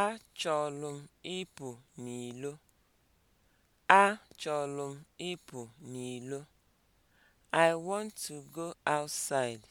Achọlụ m ịpụ n'ilo. Achọlụ m ịpụ n'ilo. I want to go outside.